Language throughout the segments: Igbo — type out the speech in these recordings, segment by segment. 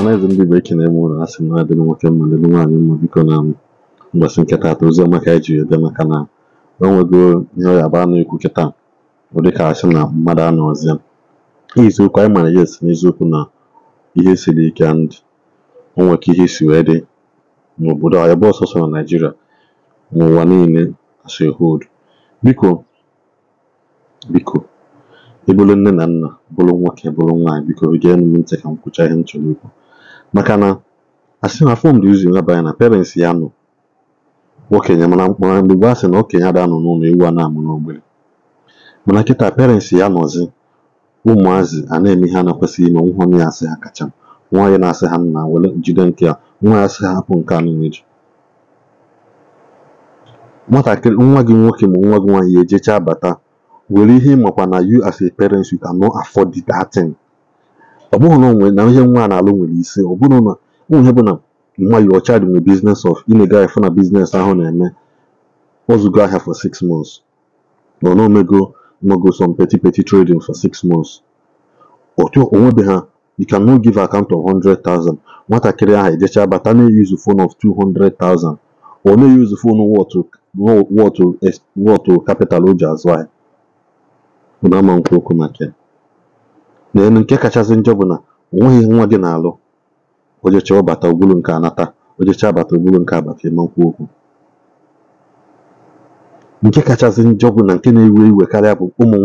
ọhanaeze ndị igbo ekene m ụlọ asị na dịrị nwoke mma dịrị nwaanyị mma biko na mgbasị nketa atọ ozi ọma ka ejiri ede maka na enwego ihe ọ yaba na-ekwu kịta ọ ka asị na mmadụ anọzie iziokwu anyị mara ya esi n'eziokwu na ihe siri ike ndị o ihe si wee dị n'obodo anyị bụ ọsọsọ na naijiria n'ụwa niile asị hold biko biko nne na nna bụrụ nwoke bụrụ nwaanyị biko gee m ntị ka m kwụcha ihe m ikwu maka na asị na fom dị ụzọ ịnabanya na parents ya nọ okenye mana mkpọrọ mgbe gbaa sị na okenye ada nọ n'ụlọ ewu a na-amụ n'ogbenye mana kịta parents ya nọzi ụmụazị a na-eme ihe a na-ekwesịghị ime nwụhọ na ya asị ha kacha nwa ya na-asị ha nna were jide nke a nwa ya asị ha hapụ nke a n'umeji nwatakịrị nwa gị nwoke ma nwa gị nwaanyị ejechaa bata were ihe ịmakwa na you as a parent you cannot afford that thing ọ bụghị na onwe na ihe nwa na-alụ nwere isi ọ bụrụ na ụmụ ihe bụ na mmadụ ọcha child nwere business of ị na na business ahụ na-eme ozugo ahịa for six months na ọ omego nogo some petty trading for six months otu onwebe ha you can no give account of 100,000 nwatakịrị ahụ ejecha bata na-eyuzu phone of 200,000 ọ na-eyuzu phone wọtụ capital o ji azụ ahịa ụna ama nkwu okwu maka n'elu nke kachasị njọ bụ na o nwa gị na-alụ ojecha ọbata ogbulu nke anata ojecha abata ogbulu nke abata nkwu okwu nke kachasị njọ bụ na nke na-ewe iwe karịa bụ ụmụ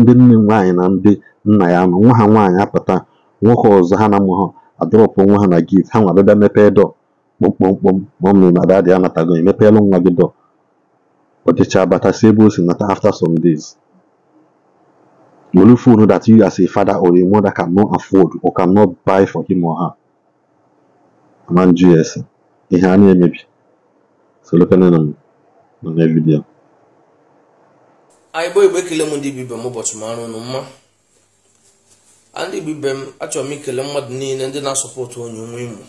ndị nne nwaanyị na ndị nna ya nọ nwa ha nwaanyị apụta nwoke ọzọ ha na amụ ha adọrọpụ nwa ha na gate ha nwa bịa mepee dọ kpọmkpọmkpọm mọmị na dadị anatago emepeelụ nwa gị dọ ojecha abata si ebe o si nata after some days money full know that you as a father or a mother cannot afford or cannot buy for him or her man gs ihe a na-emebi so na na vidiyo anyị igbo ekele m ndị ibe m ụbọchị m arụ mma ndị ibe m achọrọ m ikele mmadụ niile ndị na-asọpọtụ onye nwe imo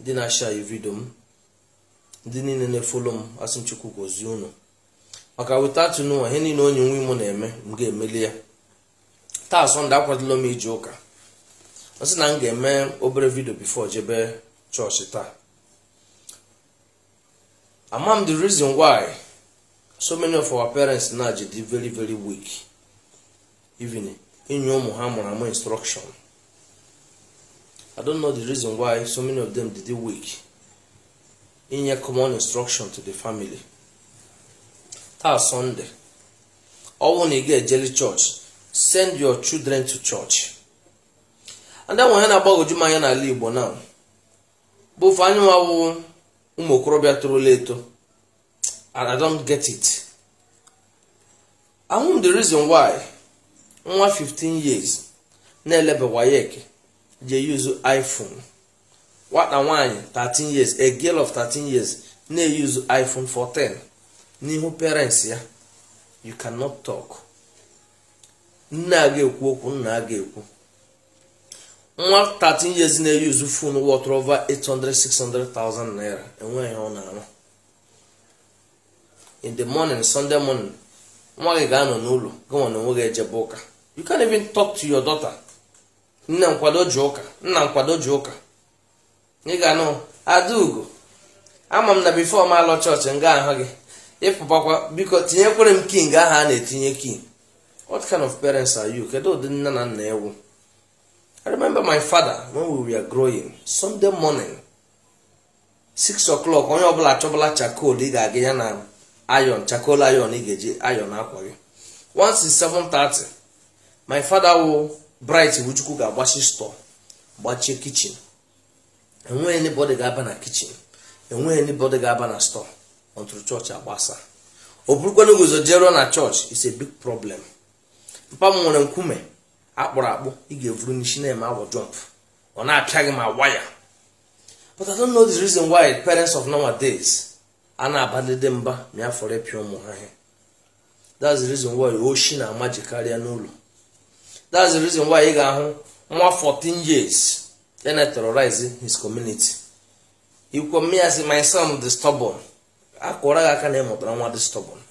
ndị na-asha vidio m ndị niile na-efolo m asị chukwu unu maka weta atụnụwa ihe niile onye nwe na-eme m ga-emeli ya taa sọnde akwadola m ije ụka ọ na m ga-eme obere vidio bifo jebe chọọchị taa ama m the reason why so many of our parents na ji dị very very weak even inye ụmụ ha mụrụ amụ instruction i don't know the reason why so many of them dị weak inye common instruction to the family taa sọnde ọnwụ na ị ga-ejeli chọọchị send your children to church and onye na-agbagoju m anya n'ala igbo na bụ ofe anyị nwawụ ụmụ okorobịa torola eto and i don't get it ahụ the reason why nwa 15 years na-elebawayek je use iphone nwata nwaanyị 13 years a girl of 13 years na-eyuzu iphone 14 n'ihu parents ya you cannot talk. nne a ga-ekwu okwu nna a ga-ekwu nwa 13 years na-eyuzu fon water over 800 600,000 naira enweghị ọ na-arụ in the morning sunday morning nwa gị ga-anọ n'ụlọ gịnwa na onwe gị ejebe ụka you can't even talk to your daughter nne nkwado ji ụka nna nkwado ji ụka ị ga-anụ adaugo ama m na bifo m alọ chọọchị nga ahụ gị ịpụbakwa biko tinyekwere m king ahụ a na-etinye king what kind of parents are you kedu ụdị nne na nna ewu i remember my father when we were growing sunday morning 6 o'clock onye ọbụla achọbụla chakol ị ga-aga ya na ayon chakol ayon ị ga-eji ayon akwa gị once 7:30 my father wụ bright wuchukwu ga-agbachi store gbachie kichin enweghị anybody ga-aba na kichin enweghị anybody ga-aba na store until chọọchị agbasa ọ bụrụkwana guzo na chọọchị is a big problem papa m nwere nkume akpụrụ akpụ ị ga-evuru n'isi na-eme awọ jump ọ na-apịa gị ma waya but I don't know the reason why parents of nowadays a na-abadede mba ma ya fọrọ ịpịa ụmụ ha ihe that's the reason why oshi na-amaji karịa n'ụlọ that's the reason why ị ga-ahụ nwa 14 years ya e na-terrorize his community ikwu mmiri ya my son the stubborn akụra gị aka na ịmụtara nwa the stubborn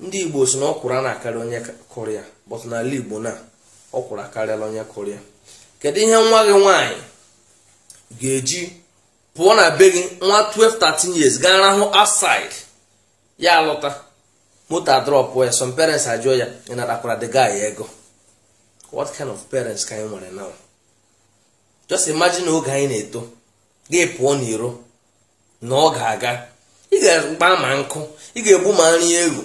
ndị igbo si na ọkwụrụ a na-akarị onye kụrụ ya n'ala igbo na ọkwụrụ akarịala onye kụrụ kedu ihe nwa gị nwaanyị ga-eji pụọ na be gị nwa 12 13 years gaa rahụ outside ya alọta moto drop ya some parents ajụọ ya ị natakwara the guy ego what kind of parents ka anyị nwere now just imagine oge anyị na-eto gị pụọ n'iro na ọ ga-aga ị ga-agba ma nkụ ị ga-egbu ma nri egwu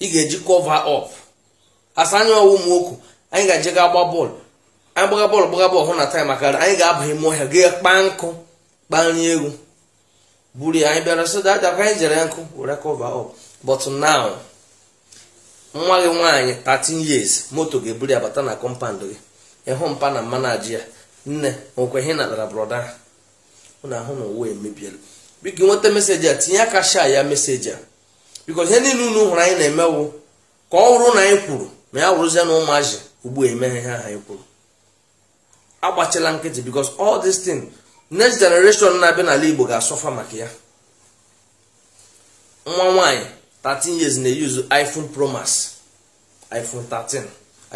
ị ga-eji kọva ọp asa anya ọwụ nwoke anyị ga-eje ga gba bọọlụ anyị gbaga bọọlụ gbaga bọọlụ hụ na taịm makara anyị ga-abanye m ọhịa ga kpaa nkụ kpaa nri egwu buru ya anyị bịara so dada ka anyị jere nkụ were kọva ọp but now nwa gị nwaanyị 13 years moto ga-eburu ya bata na kọmpand gị ịhụ mpa na mmanaji ya nne nwekweghị natara brọda ahụ ahụ na ụwa emebiela biko nweta meseji a tinye aka ya meseji a bikos ihe niile unu hụrụ anyị na-emewu ka ọ hụrụ na anyị kwuru ma ya wụrụzie na ụmụazị ugbu emeghe ha anyị kwuru agbachila nkịtị bikos all dis tin next generation na-abịa n'ala igbo ga-asọfa maka ya nwa nwanyị 13 years na-eyuzu iphone promas iphone 13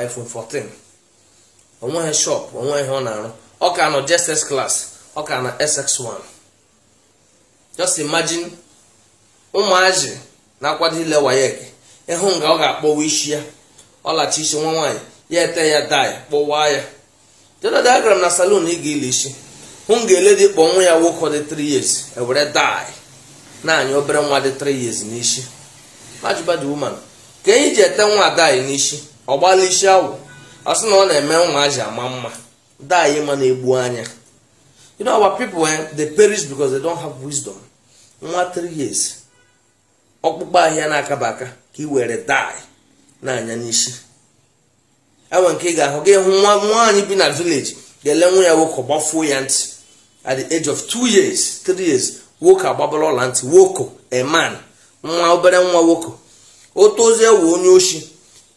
iphone 14 onweghị shop onweghị ọ na-arụ ọ ka nọ ss ọ ka na sx1 just imagine ụmụazị na-akwado ile wayek ịhụ nga ọ ga-akpọwa isi ya ọlachi isi nwa nwaanyị ya ete ya dai kpọwaa ya jeda diagram na salon ị ga-ile isi hụ nga ele dị kpọ nwa ya nwoke dị 3 years ewere dai na-anya obere nwa dị 3 years n'isi majibadi woman ka enyi ji ete nwa dai n'isi ọ gbala isi awụ ọ sị na ọ na-eme nwa aji ama mma dai ma na-egbu anya you know our people eh, they perish because they don't have wisdom nwa 3 years ọkpụkpọ ahịa na-akaba aka ka ị were dai na-anya n'isi enwe nke ị ga-ahụ gị hụ nwa nwaanyị bi na vileji ga-ele nwa ya nwoke gbafuo ya ntị at the age of two years three years nwoke agbabara ọla ntị nwoko eman nwa obere nwa nwoko ozi ewe onye ochi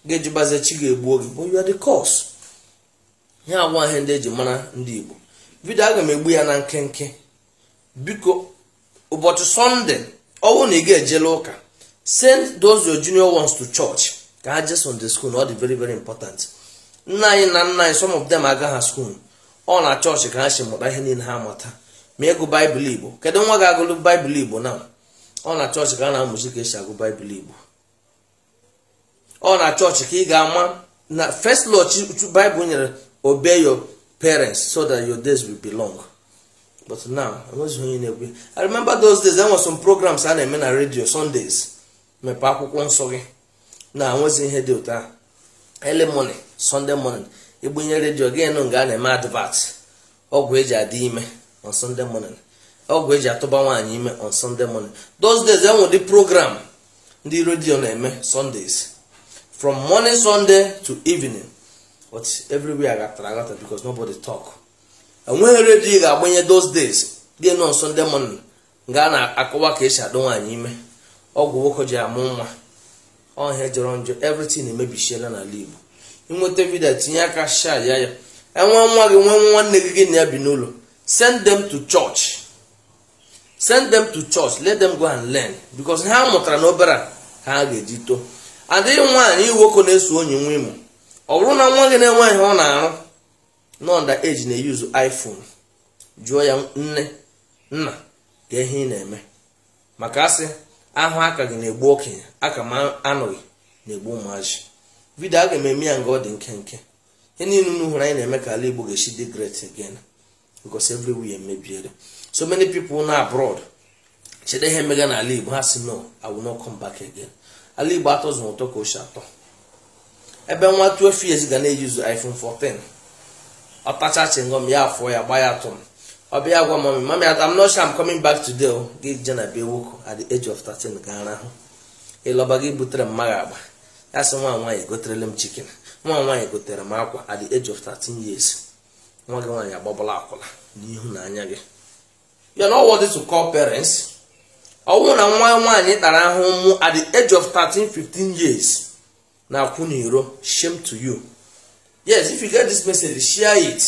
ga-ejibaze chi ga-egbuo gị bụ ya the cause ya agwa ahịa ndị eji mara ndị Igbo vidio aga m egbu ya na nkenke biko ụbọchị sọnde ọwụ na ị ga-ejela ụka send those your junior ones to church ka ha on the school na ọ dị very very important nna anyị na nna anyị some of them ha school ọ na chọọchị ka ha si mụta ihe niile ha mata ma ịgụ baịbụl igbo kedu nwa ga-agụlụ baịbụl igbo na ọ na chọọchị ka a na-amụzi ka esi agụ baịbụl igbo ọ na chọọchị ka ị ga-ama na first law baịbụl nyere obe your parents so that your days will be long but now enweghị onye na-ekwe i remember those days there were some programs i na-eme na radio sundays mepee akwụkwọ nsọ gị na enwezi ihe dị ụtọ early morning sunday morning igbunye redio gị nụ nga a na-eme advert ọgwụ eji adị ime on sunday morning ọgwụ eji atụba nwaanyị ime on sunday morning those days enwe ụdị program ndị redio na-eme sundays from morning sunday to evening but everywhere agatara agata because nobody talk. enweghị redio ị ga-agbanye those days dị nọ nso ndị mụnna nga a na-akọwa ka esi adị nwaanyị ime ọgwụ nwoke ji amụ nwa ọhịa jọrọ njọ everything emebichiela n'ala Igbo ịnweta vidio tinye aka sha ya ya enwe nwa gị nwee nwanne gị gị na ya bi n'ụlọ send t to church send them to let go and learn because ha mụtara n'obere a ka ha ga-eji too adịghị nwaanyị nwoke na-eso onye nwa imo ọ bụrụ na nwa gị na-enweghị ọ na-arụ nọnda eji na-eyuzu iphone jụọ ya nne nna ka ihe ị na-eme maka asị ahụ aka gị na-egbu okenye aka m anọghị na-egbu ụmụazị vidio a ga ememe ya nga ọ dị nkenke ihe niile unu hụrụ anyị na-eme ka ala igbo ga-esi dị great again because everywhere emebiere so many people na abroad chede ihe emega ala igbo ha si no I will not ala igbo atọzụ ụtọ ka ochie atọ ebe nwa 12 years ga na-eyuzu iphone 14 ọ pachachin gom ya afọ ya gba ya atụ ọ bịa gwa mami mami adam not sure I'm bak back o gị je na bee nwoke at the age of 13 ga arahụ ịlọba gị butere mmaga agba ya sị nwa nwaanyị goterele m nwa nwaanyị gotere m akwa at the age of 13 years nwa gị nwaanyị agbabala akwụla n'ihu na anya gị parents na nwa nwaanyị tara ahụ at the age of 13 15 years na akwụ n'iro shame to you yes if you get this message share it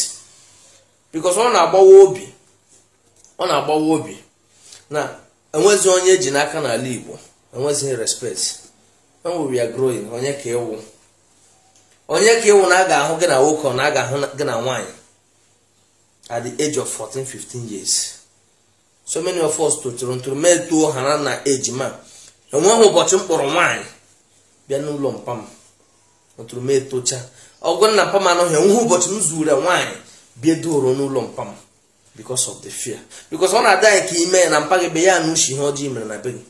because ọ na-agbawa obi ọ na-agbawa obi na enwezi onye eji n'aka n'ala Igbo enwezighị respect when we are growing onye ka ewu onye ka ewu na a ga-ahụ gị na nwoke na a ga-ahụ gị na nwaanyị at the age of 14 15 years so many of us tụtụrụ ntụrụ metuo ha na eji ma enweghị ụbọchị mkpọrọ nwaanyị bịa n'ụlọ mpa m ntụrụ metocha ọgwụ na mpa m anọghị nwa ụbọchị m zuru nwaanyị bie doro n'ụlọ mpa m because of the fear because ọ na-ada anyị ka ime na mpa gị be ya na uche ihe ọjọọ mere na be gị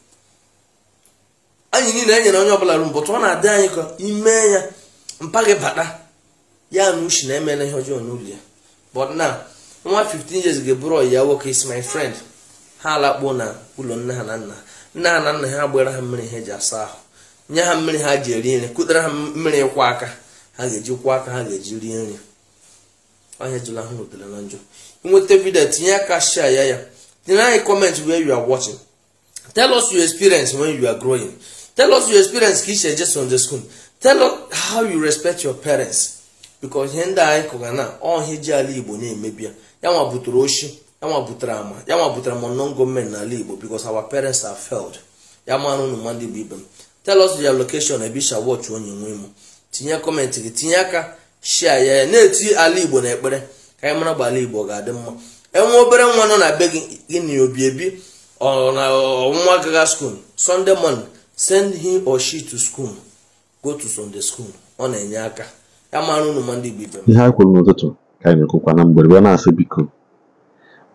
anyị niile enyere onye ọbụla ru mbọtụ ọ na-adị anyị ka ime ya mpa gị bata ya na uche na-emela ihe ọjọọ n'ụlọ ya but now nwa 15 years ga-eburu ọyị ya nwoke is my friend ha alakpuo na ụlọ nne ha na nna nne ha na nna ha gbara ha mmiri ha eji asa ahụ nye ha mmiri ha ji eri nri kụtara ha mmiri ịkwọ aka ha ga-eji kwụ aka ha ga-eji rie nri ọnya jụla ha rụtere na njọ inweta vidio tinye aka share ya ya tinye anyị kọmentị where you are watching tell us your experience when you are growing tell us your experience ka iche eje sunday school tell us how you respect your parents because ihe ndị anyị kụga na ọhịa ji ala igbo na-emebi ya yanwa butere oshi yanwa butere ama yanwa butere non gọọmenti n'ala igbo because our parents are failed ya marụ ụmụ mmadụ igbo ibe m tell us your location ebe isha watch onye nwe m tinye kọmentị gị tinye aka shia ya na-eti ala igbo na ekpere ka anyị mara gba ala igbo ga-adị mma enwe obere nwa nọ na be gị gị na obi ebi na ọnwa gaga school sunday morning send him or she to school go to sunday school ọ na-enye aka ya mara unu ndị igbo ibe ihe a kwuru n'ụtụtụ ka anyị mekwukwa na mgberebe na-asị biko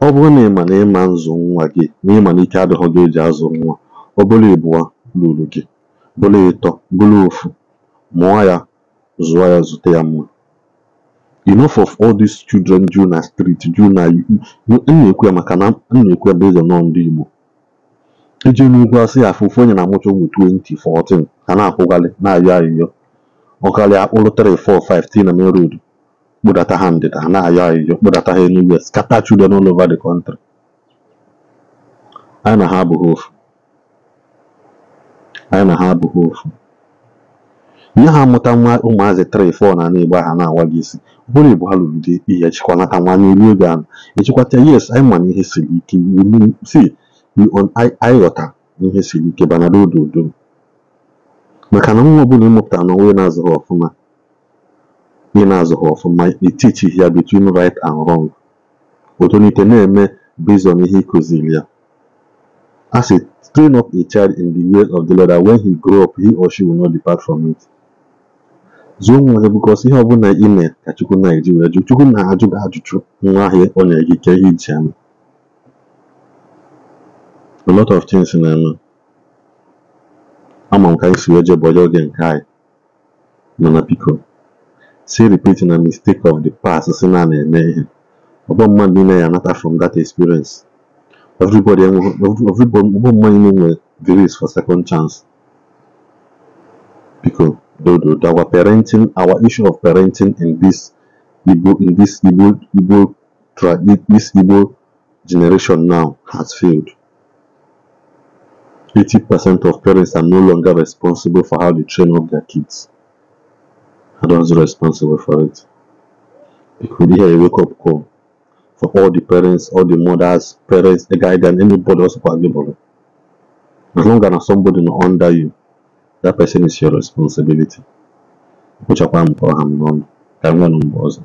ọ bụrụ na ịma na ịma nzụ nwa gị na ịma na ike adịghị gị eji azụ nwa ọ bụla ịbụa lụrụ gị bụla ịtọ bụla ofu mụọ ya zụọ ya zụta ya mma enough of all these children due na street due na na-ekwu ya maka na na-ekwu ya bezọ nọ ndị Igbo eji n'ugwu asị ya afụ ofu onye na-amụcha ụmụ 2014 ka na-akwụgalị na-ayọ ayịyọ ọkarịa akpụrụ 3415 na main road kpụdata ha ndịda na-ayọ ayịyọ kpụdata ha enugwu scatter children all over the country anyị na ha abụghị ofu anyị na ha abụghị ofu nye ha amụta nwa ụmụazị 3 4 na n'igba ha na-awa gị isi ọ bụrụ ibu ha lụrụ di ihe chịkwa nata nwa n'elu oge ahụ echikwata yes anyị ma ihe siri ike si anyị ghọta ihe siri ike banara odo odo maka na nwa ọbụla ịmụpụtara na onwe na-azụghị ọfụma ị na-azụghị ọfụma etichi ya between right and wrong otolite na-eme based ihe ịkụziri ya As a train up a child in the way of the Lord, when he grow up, he or she will not depart from it. Zuo nwa gị bikos ihe ọbụla ị mee ka Chukwu na-eji wee jụ Chukwu na-ajụ gị ajụjụ nwa ahịa ọ nyere gị ike ihe iji ama a lot of things na-eme ama m ka anyị si wee jebọje oge nke anyị mana biko si repeat na mistake of the past si na na-eme ihe Ọbọ mmadụ niile ya anata from that experience everybody ọgbọ mmadụ niile nwere grace for second chance biko Dodo that were parenting our issue of parenting in this Igbo in this Igbo Igbo this Igbo generation now has failed. 80% of parents are no longer responsible for how they train up their kids. Adults are responsible for it. It could hear a wake-up call for all the parents, all the mothers, parents, the guy, and anybody else for As long as somebody under you, that person is your responsibility. Kpochakwa mkpọrọ ha n'ọnụ. Ka m nwee n'ụmụ ọzọ.